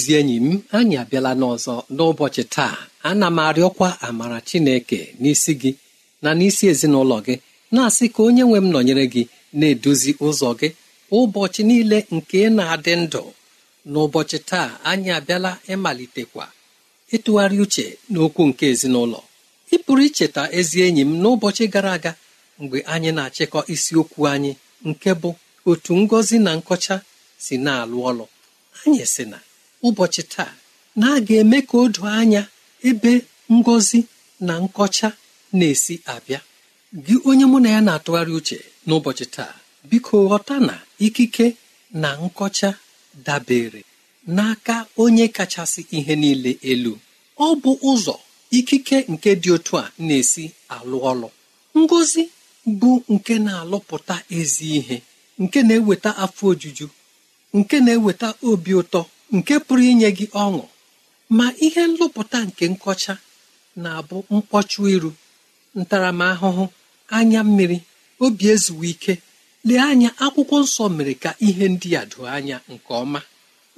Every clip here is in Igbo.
ezi enyi m anyị abịala n'ọzọ n'ụbọchị taa ana m arịọkwa amara chineke n'isi gị na n'isi ezinụlọ gị na-asị ka onye nwe m nọnyere gị na-eduzi ụzọ gị ụbọchị niile nke na-adị ndụ n'ụbọchị taa anyị abịala ịmalitekwa ịtụgharị uche n'okwu nke ezinụlọ ị pụrụ icheta ezi enyi m n'ụbọchị gara aga mgbe anyị na-achịkọ isiokwu anyị nke bụ otu ngozi na nkọcha si na-alụ ọlụ anyị si na ụbọchị taa na a ga-eme ka o anya ebe ngozi na nkọcha na-esi abịa gị onye mụ na ya na-atụgharị uche n'ụbọchị taa biko ghọta na ikike na nkọcha dabere n'aka onye kachasị ihe niile elu ọ bụ ụzọ ikike nke dị otu a na-esi alụ ọlụ ngozi bụ nke na-alụpụta ezi ihe nke na-eweta afọ ojuju nke na-eweta obi ụtọ nke pụrụ inye gị ọṅụ ma ihe nlụpụta nke nkọcha na-abụ mkpọchụ iru ntaramahụhụ anya mmiri obi ezuwe ike lee anya akwụkwọ nsọ mere ka ihe ndị a doo anya nke ọma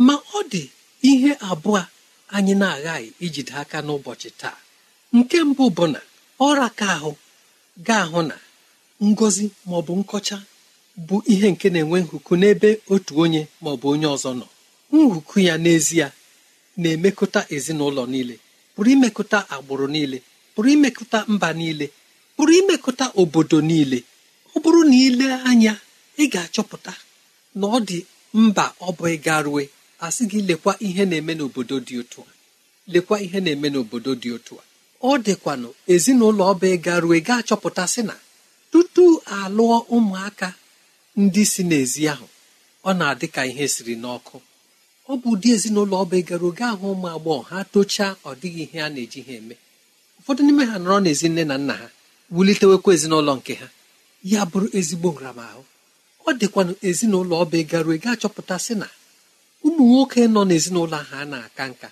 ma ọ dị ihe abụọ anyị na-aghaghị ijide aka n'ụbọchị taa nke mbụ bụ na ọra ka ahụ ga-ahụ na ngozi maọbụ nkọcha bụ ihe nke na-enwe nkuku n'ebe otu onye maọbụ onye ọzọ nọ nhuku ya n'ezie na-emekọta ezinụlọ niile pụrụ imekọta agbụrụ niile pụrụ imekọta mba niile pụrụ imekọta obodo niile ọ bụrụ na ile anya ị ga-achọpụta na ọ dị mba ọ bụ ịgarue asị gị lekwa ihe na-eme n'obodo dị otu a lekwa ihe na-eme n'obodo dị otu a ọ dịkwanụ ezinụlọ ọba ịgarue ga-achọpụta sị na tutu alụọ ụmụaka ndị si n'ezi ahụ ọ na-adị ka ihe siri n'ọkụ ọ bụ ụdị ezinụlọ ọba egara oge ahụ ụmụ agbọghọ ha tochaa ọ dịghị ihe a na-eji ha eme ụfọdụ n'ime ha nọrọ n'ezi nne na nna ha wulitewekwa ezinụlọ nke ha ya bụrụ ezigbo nramahụ ọ dịkwanụ ezinụlọ ọba egara oge achọpụta sị na ụmụ nwoke nọ n'ezinụlọ ahụ a na-aka nka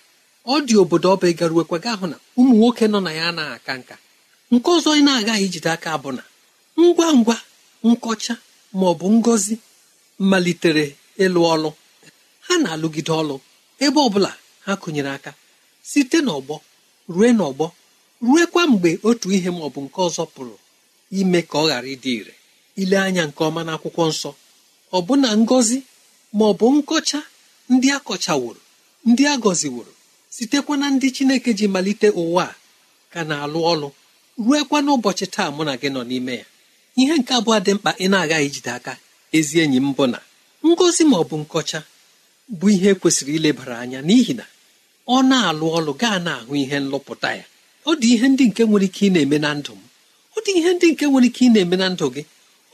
ọ dị obodo ọba egara gaa hụ na ụmụ nwoke nọ na ya anaghị aka nka nke ọzọ na-agaghị ijide aka bụ na ngwa ngwa nkọcha ma ọ bụ ngọzi malitere ịlụ ọlụ ha na-alụgide ọlụ ebe ọbụla ha kụnyere aka site n'ọgbọ rue n'ọgbọ ruekwa mgbe otu ihe ma ọ bụ nke ọzọ pụrụ ime ka ọ ghara ịdị ire ile anya nke ọma n'akwụkwọ nsọ ọbụna ngọzi ma ọ bụ nkọcha ndị akọchaworo ndị a gọziworo sitekwa na ndị chineke ji malite ụwa a ka na-alụ ọlụ ruekwa n'ụbọchị taa mụ na gị nọ n'ime ya ihe nke abụọ dị mkpa ị na-agaghị ijide aka ezi enyi m bụ na ngọzi ma ọ bụ nkọcha bụ ihe kwesịrị ilebara anya n'ihi na ọ na-alụ ọlụ gaa na-ahụ ihe nlụpụta ya ọ dị ihe ndị nke nwere ike ị na-eme na ndụ m ọ dị ihe ndị nke nwere ike ị na-eme na ndụ gị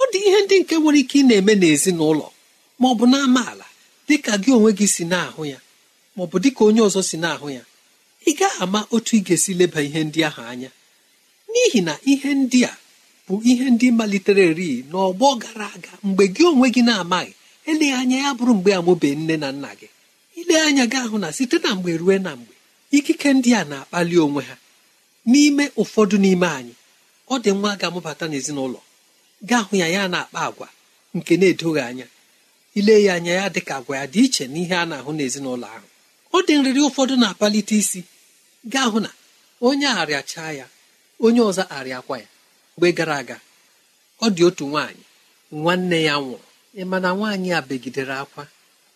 ọ dị ihe ndị nke nwere ike ị na-eme n'ezinụlọ ma ọ bụ na amaala dị ka gị onwe gị si na-ahụ ya ma ọ bụ dị ka onye ọzọ si na-ahụ ya ị gaghị ama otu ị ga-esi leba ihe ndị ahụ anya n'ihi na ihe ndị a bụ ihe ndị malitere eri n'ọgbọ gara aga mgbe gị onwe gị na-amaghị eleghị anya ya bụrụ mgbe amụbe nne na nna gị ile anya gị ahụ na site na mgbe rue na mgbe ikike ndị a na-akpali onwe ha n'ime ụfọdụ n'ime anyị ọ dị nwa ga-amụbata n'ezinụlọ gaa hụ ya ya na-akpa agwa nke na-edoghị anya ile ya anya ya dị ka agwa ya dị iche n'ihe a na-ahụ n'ezinụlọ ahụ ọ dị nrịrị ụfọdụ na-akpalite isi gaa hụ na onye arịachaa ya onye ọzọ arịakwa ya mgbe gara aga ọ dị otu nwaanyị nwanne ya nwụrụ ị ma na nwaanyị a begidere akwa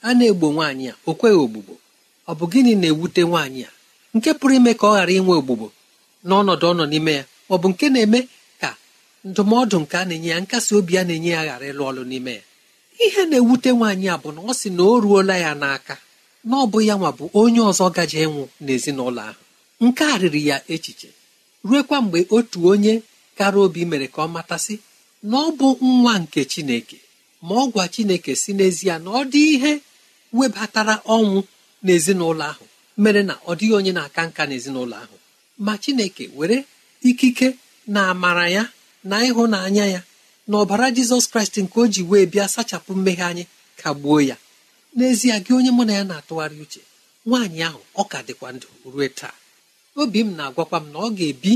a na-egbo nwaanyị a o kweghị ogbugbo ọ bụ gịnị na-ewute nwaanyị a nke pụrụ ime ka ọ ghara inwe ogbugbo n'ọnọdụ ọ nọ n'ime ya ọ bụ nke na-eme ka ndụmọdụ nke a na-enye ya nkasi obi a na-enye ya ghara ịlụ ọlụ n'ime ya ihe na-ewute nwaanyị a bụ na ọ sị na o ruola ya n'aka na ọ bụ ya nwa bụ onye ọzọ gaje ịnwụ n'ezinụlọ ahụ nke a riri ya echiche ruekwa mgbe otu onye kara obi mere ka ọ matasị na ọ bụ nwa nke Chineke ma ọ gwa chineke si n'ezie na ọ dị ihe webatara ọnwụ n'ezinụlọ ahụ mere na ọ dịghị onye na-aka nka n'ezinụlọ ahụ ma chineke were ikike na amara ya na ịhụnanya ya na ọbara jizọs kraịst nke o ji wee bịa sachapụ mmehie anyị kagbuo ya n'ezie gị onye mụ na ya na-atụgharị uche nwaanyị ahụ ọ ka dịkwa ndụ ruo taa obi m na-agwakwa m na ọ ga-ebi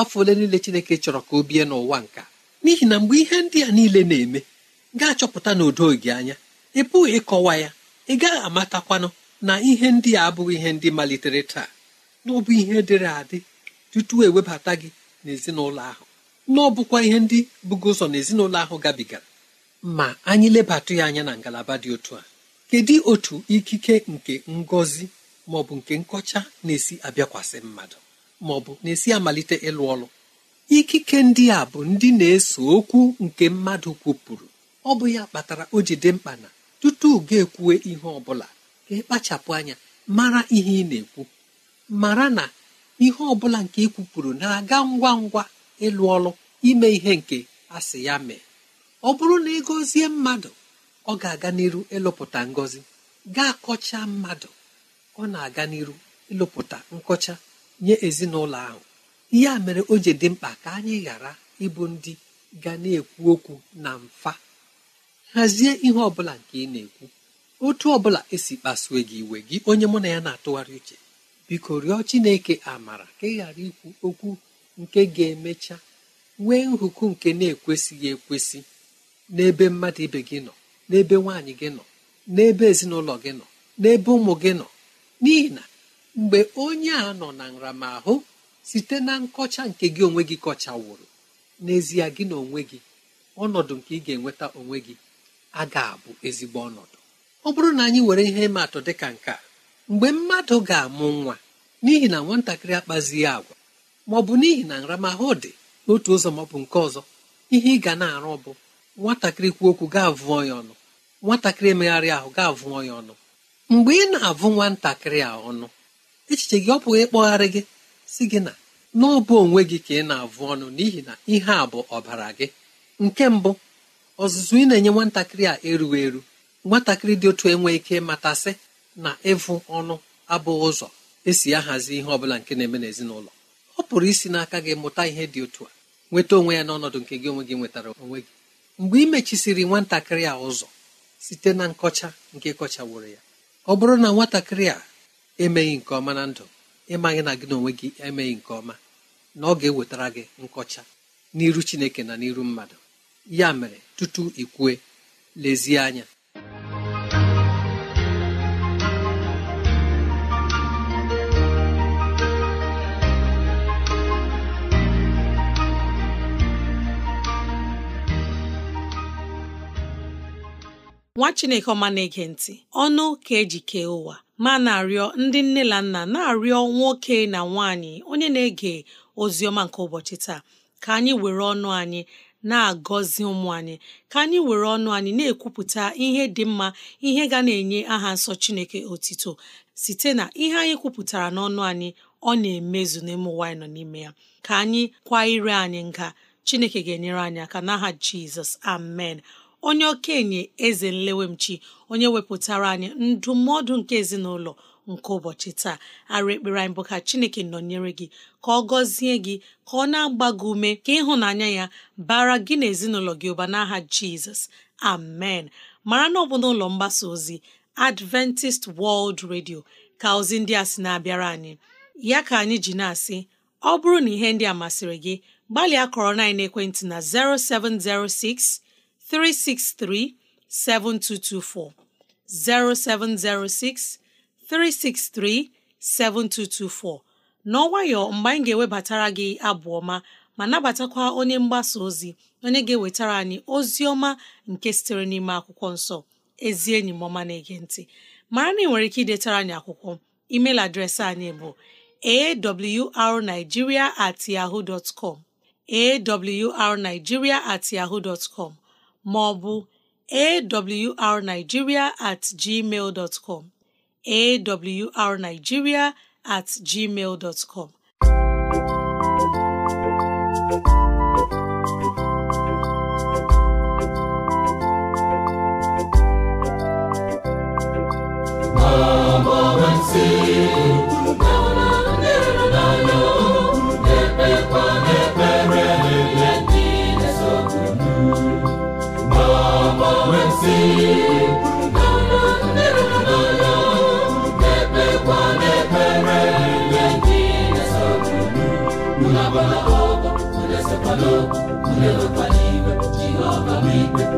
afọ ole niile chineke chọrọ ka o bie n'ụwa nka n'ihi na mgbe ihe ndị a niile na-eme gaa chọpụta na udo gị anya ị pụghị ịkọwa ya ị gaghị amatakwanụ na ihe ndị a abụghị ihe ndị malitere taa n'ọbụ ihe dịrị adị tutu ewebata gị n'ezinụlọ ahụ na ọ bụkwa ihe ndị bụgo ụzọ n'ezinụlọ ahụ gabigara ma anyị lebatụ ya anya na ngalaba dị otu a kedu otu ikike nke ngozi maọbụ nke nkọcha na-esi abịakwasị mmadụ maọbụ na-esi amalite ịlụ ọlụ ikike ndị a bụ ndị na-eso okwu nke mmadụ kwupụrụ ọ bụ ya kpatara o ji dị mkpa na tutu ga ekwuwe ihe ọ bụla ka ịkpachapụ anya mara ihe ị na-ekwu mara na ihe ọ bụla nke ị e kwupụrụ na-aga ngwa ngwa ịlụ ọlụ ime ihe nke asị ya mee ọ bụrụ na ị gọzie mmadụ ọ ga-aga n'iru ịlụpụta ngọzi gaa kọcha mmadụ ọ na-aga n'iru ịlụpụta nkọcha nye ezinụlọ ahụ ihe a mere o ji dị mkpa ka anyị ghara ịbụ ndị ga na-ekwu okwu na mfa hazie ihe ọ bụla nke ị na-ekwu otu ọ bụla esi kpasue gị iwe gị onye mụ na ya na-atụgharị uche biko rịọ Chineke amara ka ị ghara ikwu okwu nke ga-emecha nwee nhụkụ nke na-ekwesịghị ekwesị n'ebe mmadụ ibe gị nọ n'ebe nwaanyị gị nọ n'ebe ezinụlọ gị nọ n'ebe ụmụ gị nọ n'ihi na mgbe onye a nọ na nramahụ site na nkọcha nke gị onwe gị kọchawụrụ n'ezie gị na onwe gị ọnọdụ nke ị ga-enweta onwe gị a ga-abụ ezigbo ọnọdụ ọ bụrụ na anyị were ihe atụ dị ka nke a mgbe mmadụ ga-amụ nwa n'ihi na nwatakịrị akpazighị agwa ma ọ bụ n'ihi na nramahụ dị n'otu ụzọ maọbụ nke ọzọ ihe ị ga na-arụ bụ nwatakịrị kwuo okwu ga avụ ya ọnụ nwatakịrị emegharị ahụ ga avụ ya ọnụ mgbe ị na-avụ nwatakịrị a ọnụ echiche gị ọ bụghị ịkpọgharị gị si gị na n'ọbụ onwe gị ka ị na-avụ ọnụ n'ihi na ihe a bụ ọbara gị nke mbụ ọzụzụ ị na-enye nwatakịrị a erughị eru nwatakịrị dị otu enwe ike matasị na ịvụ ọnụ abụghị ụzọ esi ahazi ihe ọbụla nke na-eme n'ezinụlọ ọ pụrụ isi n'aka gị mụta ihe dị otu a nweta onwe ya n'ọnọdụ nke gị onwe gị nwetara onwe gị mgbe ị mechisiri nwatakịrị a ụzọ site na nkọcha nke kọchaworo ya ọ bụrụ na nwatakịrị a emeghị nke ọma na ndụ ịmaghị na gị na onwe gị emeghị nke ọma na ọ ga-ewetara gị nkọcha n'iru Chineke na n'iru mmadụ ya mere tutu ikwue lezie anya nwa chineke ọma na-ege ntị ọnụ ka eji kee ụwa ma na-arịọ ndị nne na nna na-arịọ nwoke na nwaanyị onye na-ege ozi ọma nke ụbọchị taa ka anyị were ọnụ anyị na-agọzi ụmụ anyị ka anyị were ọnụ anyị na-ekwupụta ihe dị mma ihe ga na-enye aha nsọ Chineke otito site na ihe anyị kwupụtara n'ọnụ anyị ọ na-emezu n'ime ụwa anyị nọ n'ime ya ka anyị kwa ire anyị nga Chineke ga-enyere anyị aka n'aha Jizọs amen onye okenye eze nlewemchi onye wepụtara anyị ndụmọdụ nke ezinụlọ nke ụbọchị taa arụ ekpere anyị bụ ka chineke nọnyere gị ka ọ gọzie gị ka ọ na-agba gị ume ka ịhụnanya ya bara gị na ezinụlọ gị ụba n'aha jizọs amen mara na ọ bụ n'ụlọ mgbasa ozi adventist world radio ka ozi ndị a sị na-abịara anyị ya ka anyị ji na-asị ọ bụrụ na ihe ndị a masịrị gị gbalịa kọrọ na ekwentị na 0706 363 7224 0706 363-7224 n'ọnwayọ mgbe anyị ga-ewebatara gị abụ ọma ma nabatakwa onye mgbasa ozi onye ga-ewetara anyị ozi ọma nke sitere n'ime akwụkwọ nsọ ezi enyi m na-ege ntị mara na ị nwere ike idetara anyị akwụkwọ email adreesị anyị bụ arigiria at yahoo dot com awrnigeria at yahoo dot com ma at gmail dot awrnigeria at gmail dot com see.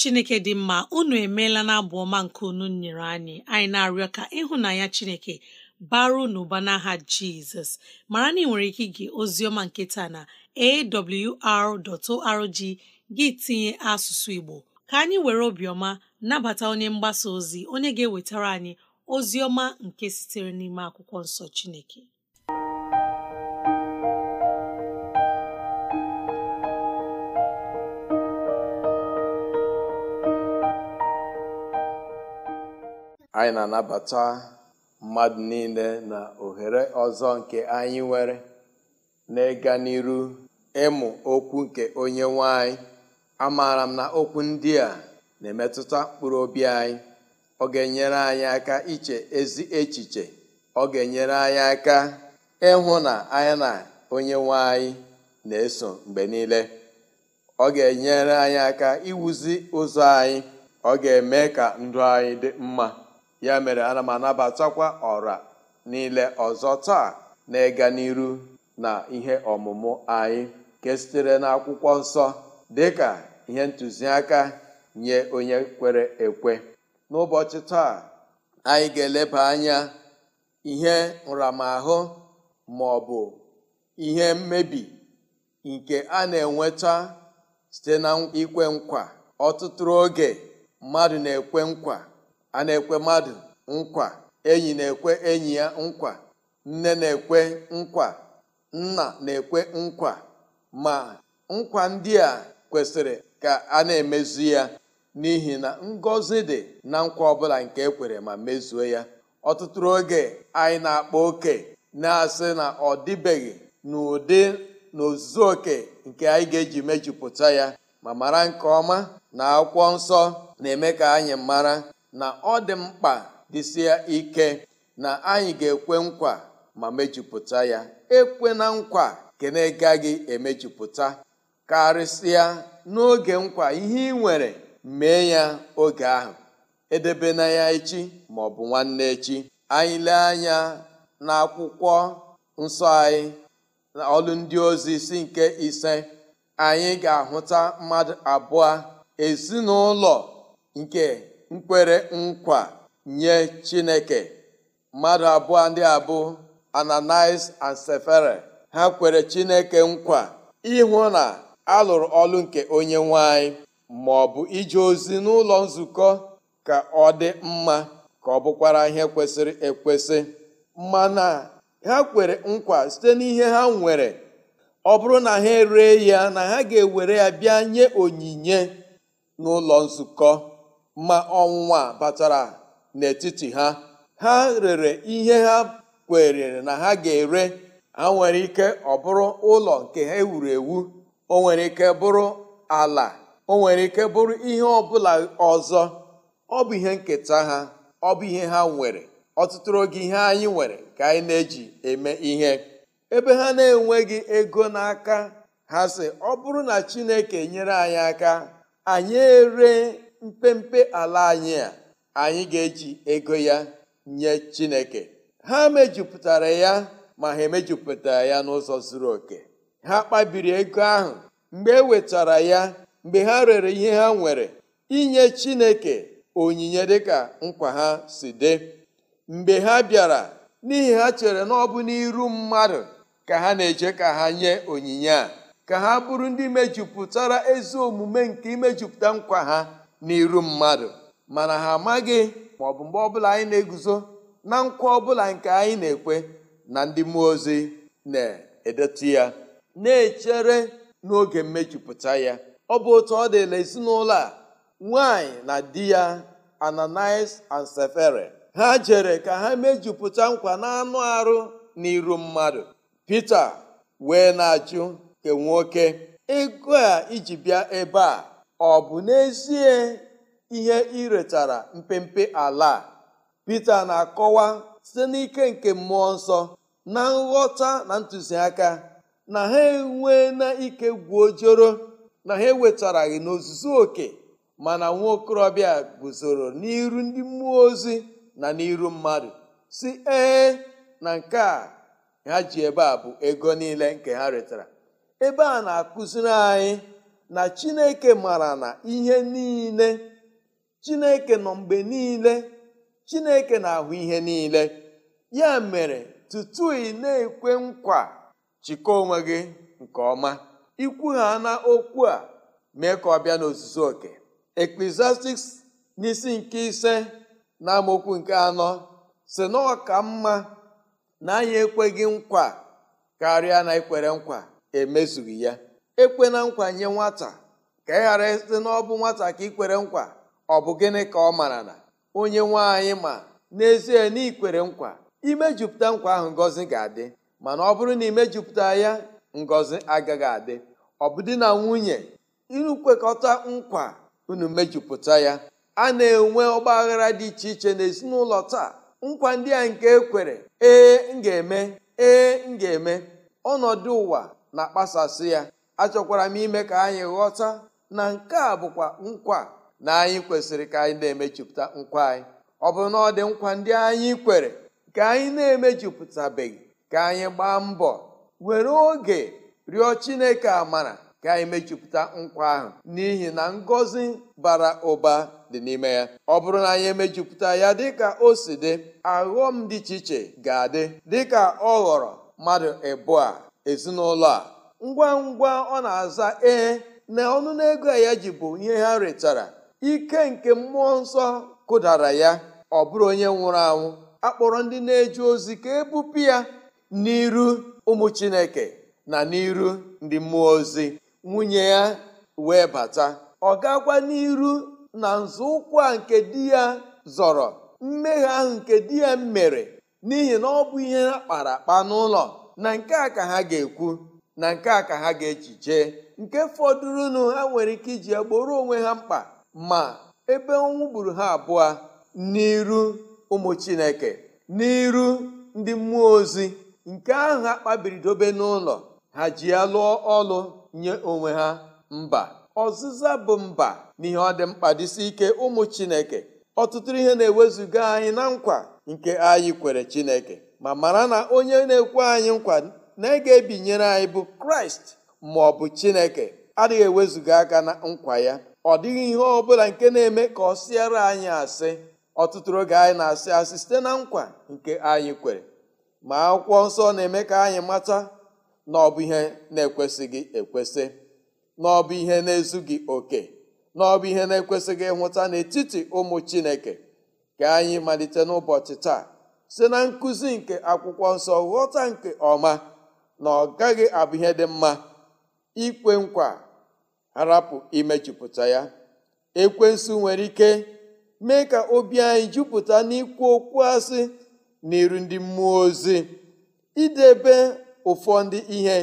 chineke dị mma unu emeela na abụ ọma nke unu nyere anyị anyị na-arịọ ka ịhụnanya chineke baru n'ụba n'aha jizọs mara na ị nwere ike ige oziọma nke taa na awr.org gị tinye asụsụ igbo ka anyị were obiọma nabata onye mgbasa ozi onye ga-ewetara anyị ozi ọma nke sitere n'ime akwụkwọ nsọ chineke anyị na-anabata mmadụ niile na ohere ọzọ nke anyị nwere n'ịga n'iru ịmụ okwu nke onye nwanyị anyị amaara m na okwu ndị a na-emetụta mkpụrụ obi anyị ọ ga-enyere anyị aka iche ezi echiche ọ ga-enyere anyị aka ịhụ na anyị na onye nwanyị na-eso mgbe niile ọ ga-enyere anyị aka iwuzi ụzọ anyị ọ ga-eme ka ndụ anyị dị mma ya mere ana m anabatakwa ọra niile ọzọ taa na-ịga n'iru na ihe ọmụmụ anyị nke sitere na akwụkwọ nsọ ka ihe ntụziaka nye onye kwere ekwe n'ụbọchị taa anyị ga-eleba anya ihe nramahụ ma ọ bụ ihe mmebi nke a na-enweta site na ikwe nkwa ọtụtụ oge mmadụ na-ekwe nkwa a na-ekwe mmadụ nkwa enyi na-ekwe enyi ya nkwa nne na-ekwe nkwa nna na-ekwe nkwa ma nkwa ndị a kwesịrị ka a na-emezu ya n'ihi na ngọzi dị na nkwa ọbụla nke ekwere ma mezuo ya ọtụtụ oge anyị na-akpa oke na-asị na ọ dịbeghị n'ụdị na oke nke anyị ga-eji mejupụta ya ma mara nke ọma na akwụkwọ nsọ na-eme ka anyị mara na ọ dị mkpa dịsịa ike na anyị ga-ekwe nkwa ma mejupụta ya ekwe na nkwa nke na-agaghị emejupụta karịsịa n'oge nkwa ihe ị nwere mee ya oge ahụ edebe na ya echi ma ọ bụ nwanne echi anyị lee anya n'akwụkwọ nsọ anyị na ọlụ ndị ozi isi nke ise anyị ga-ahụta mmadụ abụọ ezinụlọ nke nkwere nkwa nye Chineke mmadụ abụọ ndị abụ ananis and Sefere ha kwere Chineke nkwa ịhụ na alụrụ ọlụ nke onye nwanyị ma ọ bụ ije ozi n'ụlọ nzukọ ka ọ dị mma ka ọ bụkwara ihe kwesịrị ekwesị mana ha kwere nkwa site n'ihe ha nwere ọ bụrụ na ha ree ya na ha ga-ewere ya bịa nye onyinye n'ụlọ nzukọ ma ọnwụnwa batara n'etiti ha ha rere ihe ha kwerere na ha ga-ere ha nwere ike ọ bụrụ ụlọ nke ha ewuru ewu o nwere ike bụrụ ala o nwere ike bụrụ ihe ọbụla ọzọ ọ bụ ihe nketa ha ọ bụ ihe ha nwere ọtụtụ oge ihe anyị nwere ka anyị na-eji eme ihe ebe ha na-enweghị ego n'aka ha sị ọ bụrụ na Chineke nyere anyị aka anyị ere mpempe ala anyị a anyị ga-eji ego ya nye Chineke ha mejupụtara ya ma ha emejupụtara ya n'ụzọ zuru oke ha kpabiri ego ahụ mgbe e wetara ya mgbe ha rere ihe ha nwere inye Chineke onyinye dịka nkwa ha si dị mgbe ha bịara n'ihi ha chere na ọ n'iru mmadụ ka ha na-eje ka ha nye onyinye a ka ha bụrụ ndị mejupụtara ezi omume nke imejupụta nkwa ha n'iru mmadụ mana ha amaghị ma ọ bụ mgbe ọbụla anyị na-eguzo na nkwa ọbụla nke anyị na-ekwe na ndị mmụọ ozi na-edetu ya na-echere n'oge mmejupụta ya ọ bụ otu ọ dịla ezinụlọ a nwanyị na di ya Ananias and Sefere ha jere ka ha mejupụta nkwa n'anụ arụ n'iru mmadụ Pita wee na-ajụ ke nwoke ego a iji bịa ebe a ọ bụ n'ezie ihe iretara mpempe ala Pita na-akọwa site n'ike nke mmụọ nsọ na nghọta na ntụziaka na ha enwe na ike gwuojoro na ha ewetaraghị n'ozuzu oke mana nwa okorobịa guzoro n'iru ndị mmụọ ozi na n'iru mmadụ si ee na nke a ha ji ebe a bụ ego niile nke ha retara ebe a na-akụziri anyị na chineke mara na ihe niile chineke nọ mgbe niile chineke na-ahụ ihe niile ya mere tutu ị na-ekwe nkwa chịkọ onwe gị nke ọma ikwu ha na okwu a mee ka ọ bịa n'ozuzu oke Ecclesiastics n'isi nke ise na amaokwu nke anọ si na ọ ka mma na anyị ekweghị nkwa karịa na ikwere nkwa emezughị ya ekwe na nkwa nye nwata ka ị e ghara site n'ọbụ nwata ka ị kwere nkwa ọ bụ gịnị ka ọ mara na onye nwe anyị ma n'ezie na ikwere nkwa imejupụta nkwa ahụ ngozi ga-adị mana ọ bụrụ na imejupụta ya ngozi agaghị adị ọ bụ di na nwunye ịkwekọta nkwa unu mejupụta ya a na-enwe ọgba aghara dị iche iche n'ezinụlọ taa nkwa ndị a nke ekwere ee m ga-eme ee m ga-eme ọnọdụ ụwa na-akpasasị ya achọkwara m ime ka anyị ghọta na nke a bụkwa nkwa na anyị kwesịrị ka anyị na-emejupụta nkwa anyị ọ bụ na ọ dị nkwa ndị anyị kwere ka anyị na-emejupụtabeghị ka anyị gbaa mbọ were oge rịọ chineke amara ka anyị mejupụta nkwa ahụ n'ihi na ngọzi bara ụba dị n'ime ya ọ bụrụ na anyị emejupụta ya dịka o si dị aghọm dị iche iche ga-adị dịka ọ ghọrọ mmadụ ịbụọ ezinụlọ a ngwa ngwa ọ na-aza ee na ọnụ ego ya ji bụ ihe ha retara ike nke mmụọ nsọ kụdara ya ọ bụrụ onye nwụrụ anwụ akpọrọ ndị na eji ozi ka ebupụ ya n'iru ụmụ chineke na n'iru ndị mmụọ ozi nwunye ya wee bata ọ gakwa n'iru na nzọụkwụ a nke di ya zọrọ mmehie ahụ nke di ya mere n'ihi na ọ bụ ihe ha kpara akpa n'ụlọ na nke a ka ha ga-ekwu na nke a ka ha ga-eji jee nke fọdụrụnụ ha nwere ike iji ya gboro onwe ha mkpa ma ebe ọnwụ gburu ha abụọ n'iru ụmụ chineke n'iru ndị mmụọ ozi nke ahụ ha kpabiri dobe n'ụlọ ha ji ya lụọ ọlụ nye onwe ha mba ọzịza bụ mba n'ihe ọ dị mkpa dịsi ike ụmụ chineke ọtụtụ ihe na-ewezuga anyị na nkwa nke anyị kwere chineke ma mara na onye na-ekwe anyị nkwa na ị ga-ebinyere anyị bụ kraịst ma ọ bụ chineke adịghị ewezuga aka na nkwa ya ọ dịghị ihe ọ bụla nke na-eme ka ọ sịara anyị asị ọtụtụ oge anyị na-asị asị site na nkwa nke anyị kwere ma akwụkwọ nsọ na-eme ka anyị mata na ọ bụ ihe na-ekwesịghị ekwesị na ọ bụ ihe na-ezughị oke na ọ bụ ihe na-ekwesịghị ịhụta n'etiti ụmụ chineke ka anyị malite n'ụbọchị taa site na nkụzi nke akwụkwọ nsọ ghọta nke ọma na ọ gaghị abụ ihe dị mma ikwe nkwa harapụ imejupụta ya ekwensu nwere ike mee ka obi anyị jupụta n'ikwu okwu asị n'iru ndị mmụọ ozi idebe ụfọdụ ihe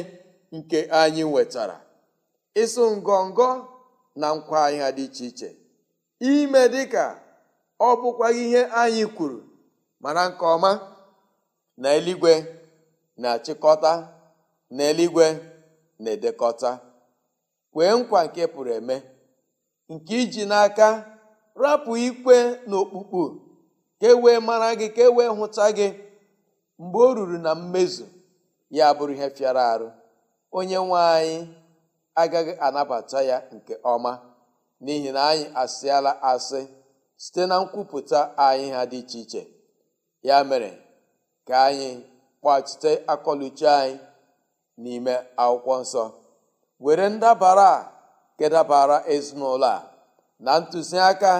nke anyị nwetara ịsụ ngọngọ na nkwa anyị dị iche iche ime dị ka ọ bụkwaghị ihe anyị kwuru mana nke ọma na eluigwe na-achịkọta n'eluigwe na-edekọta kwee nkwa nke pụrụ eme nke iji n'aka rapụ ikpe na ka e wee mara gị ka e wee hụta gị mgbe o ruru na mmezu ya bụrụ ihe fịara arụ onye nwe anyị agaghị anabata ya nke ọma n'ihi na anyị asịala asị site na nkwupụta anyị ha dị iche iche ya mere ka anyị kpachite akọluchi anyị n'ime akwụkwọ nsọ were ndabara a kedabara ezinụlọ a na ntụziaka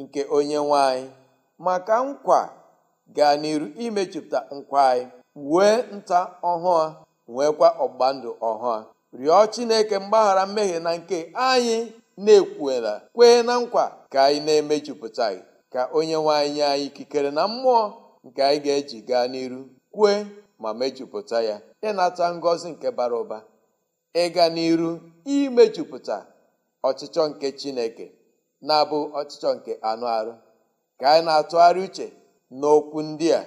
nke onye nwanyị maka nkwa gaa n'iru imejupụta nkwa anyị wee nta ọhụụ nweekwa ọgba ndụ ọhụụ rịọ chineke mgbaghara mmehie na nke anyị na-ekwuela kwee na nkwa ka anyị na-emejupụtaghị ka onye nwanyị nye anyị ikikere na mmụọ nke anyị ga-eji gaa n'iru kwee ma mejupụta ya ịnata ngọzi nke bara ụba ịga n'iru imejupụta ọchịchọ nke chineke na-abụ ọchịchọ nke anụ arụ ka anyị na-atụgharị uche n'okwu ndị a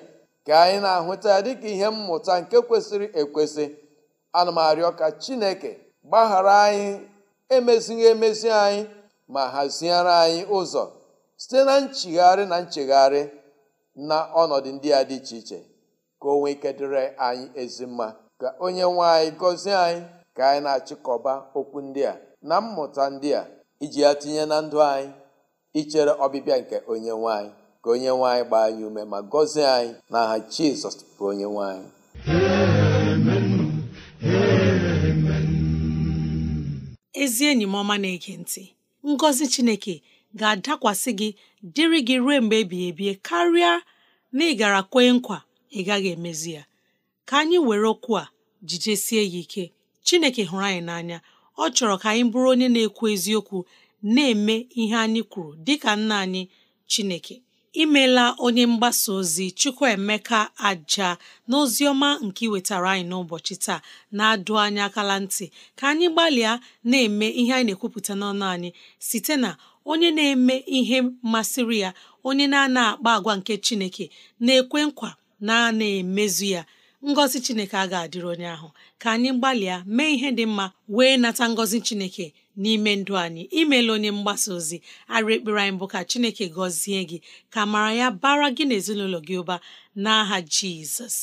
ka anyị na-ahụta ya dịka ihe mmụta nke kwesịrị ekwesị ana m arịọ ka chineke gbaghara anyị emezighị emezi anyị ma haziere anyị ụzọ site na nchigharị na nchegharị na ọnọdụ ndị a dị iche iche ka o nwee ike dịrị anyị ezi mma ka onye nwe anyị gọzie anyị ka anyị na-achịkọba okwu ndị a na mmụta ndị a iji ya tinye na ndụ anyị ichere ọbịbịa nke onye nwanyị ka onye nwanyị gbaa anyị ume ma gọzie anyị n'aha Jizọs bụ onye nwanyị ezi enyi m ọma na-ege ntị ngọzi chineke ga-adakwasị gị dịrị gị ruo mgbe ebighị ebi karịa na ị gara kwee nkwa ị gaghị emezi ya ka anyị were okwu a jijesie ya ike Chineke hụrụ anyị n'anya ọ chọrọ ka anyị bụrụ onye na-ekwu eziokwu na-eme ihe anyị kwuru dịka nna anyị Chineke imela onye mgbasa ozi Chukwuemeka aja na ozi ọma nke iwetara anyị n'ụbọchị taa na-adụ anyị akala ntị ka anyị gbalịa na-eme ihe anyị na-ekwupụta n'ọnụ anyị site na onye na-eme ihe masịrị ya onye na-ana akpa agwa nke Chineke na-ekwe nkwa na na emezu ya ngọzi chineke a ga-adịrị onye ahụ ka anyị gbalịa mee ihe dị mma wee nata ngọzi chineke n'ime ndụ anyị imeela onye mgbasa ozi arị ekpere anyị bụ ka chineke gọzie gị ka mara ya bara gị na ezinụlọ gị ụba n'aha jizọs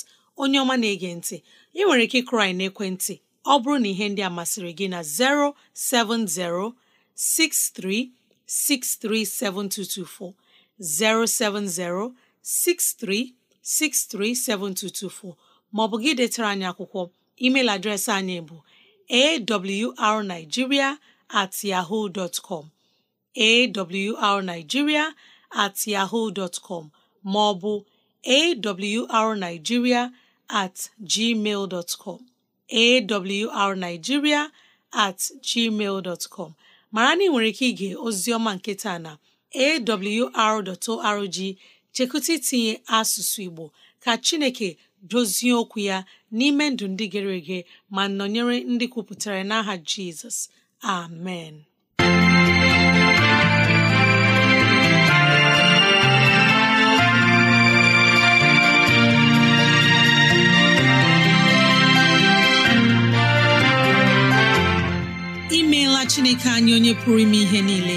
onye ọma na-ege ntị ị nwere ike ịkụrụ anyị n'ekwentị ọ bụrụ na ihe ndị a masịrị gị na 07063637224 07063 637224 maọbụ gị detara anyị akwụkwọ email adreesị anyị bụ awrnigeria at yahoo ọ bụ at yahoo dot com maọbụ awrnigeria at gmail com mara na ị nwere ike ige ozioma nketa na awr.org chekụta itinye asụsụ Igbo ka Chineke dozie okwu ya n'ime ndụ ndị gere ege ma nọnyere ndị kwupụtara n'aha Jizọs amen imeela Chineke anyị onye pụrụ ime ihe niile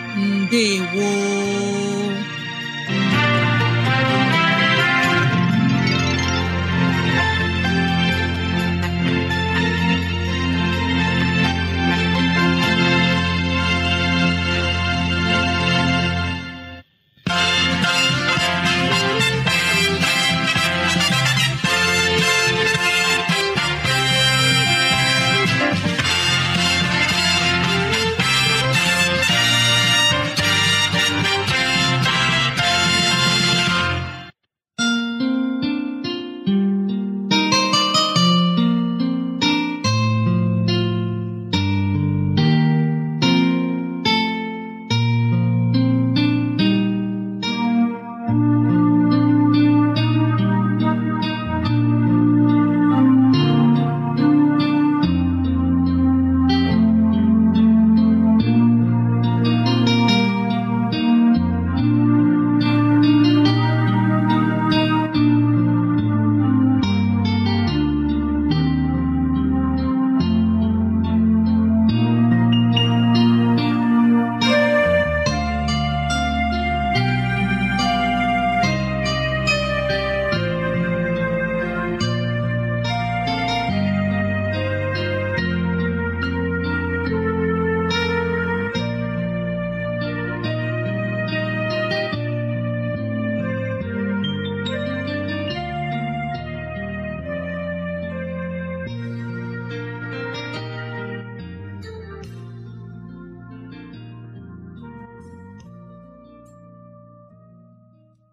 ndewo